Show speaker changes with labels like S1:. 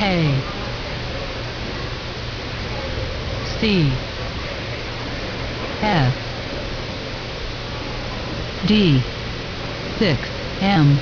S1: A: C F D
S2: 6 M